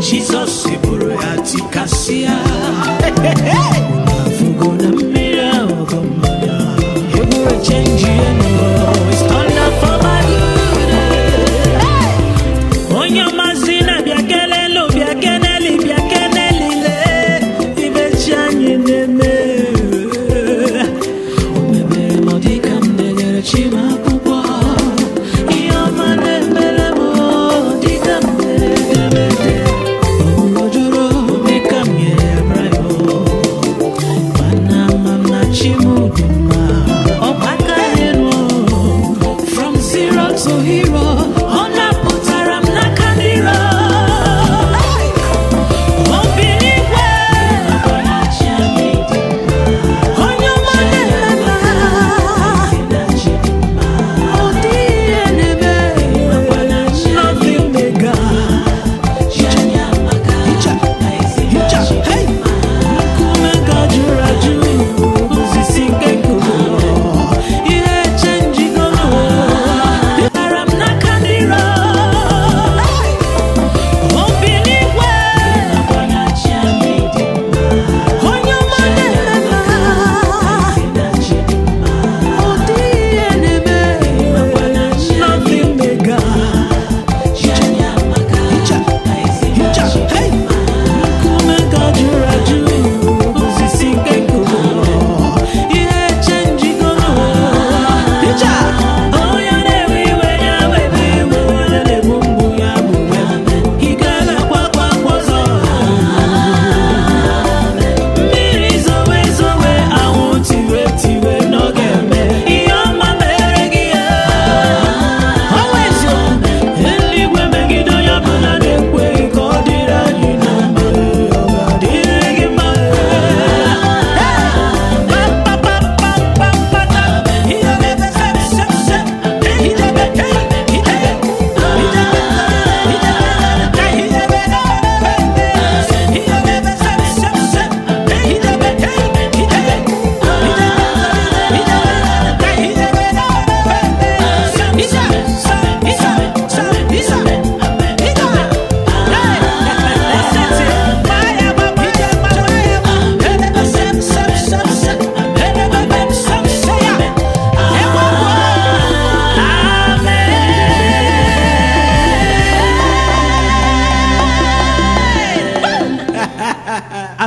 Jesus, bụrụ ya tikasịa na mfụgo na mmiri ahụ egburechenji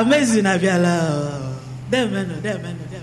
amazing abiala dẹ́ẹ̀mẹ́nu dẹ́ẹ̀mẹ́nu dẹ́ẹ̀mẹ́nu.